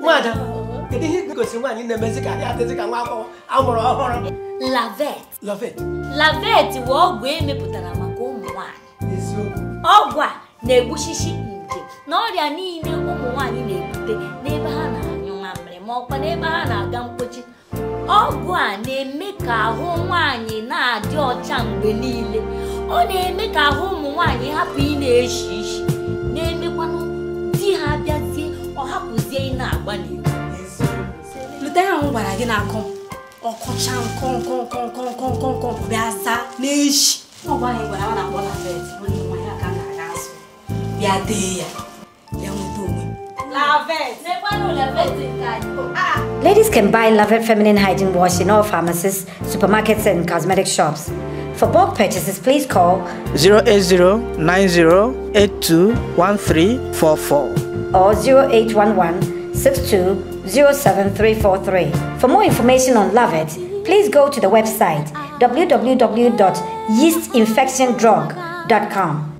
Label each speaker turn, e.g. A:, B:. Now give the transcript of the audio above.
A: nwaada kedu ihe ị gosiri nwaanyị na-emezi ka ya adịzi ka nwa akwụkwọ amụrụ ọhụrụ
B: lavet lavet lavet bụ ọgwụ emepụtara maka ụmụ nwaanyị ọgwụ a na-egbuchichi nje na ọrịa niile ụmụ nwaanyị na-ebute n'ebe ha na-anyụ mamịrị ma ọkwa n'ebe ha na-aga mkpochi ọgwụ a na-eme ka ahụ nwaanyị na-adị ọcha mgbe niile ọ na-eme ka ahụ ụmụ nwaanyị hapụ ị na-eshi ishi agbalị leta
A: ya ahụ gwara gị na akọ ọkọcha nkọ nkọ nkọ nkọ nkọ nkọ nkọ bịa zaa n'echi ọgwa anyị gwara na akpọ na fet onye nwa ya ka na-aga azụ bịa
C: Ladies can buy Lavet feminine hygiene wash in all pharmacies, supermarkets, and cosmetic shops. For bulk purchases, please call
D: 080 or
C: 0811 07343. For more information on Love It, please go to the website www.yeastinfectiondrug.com.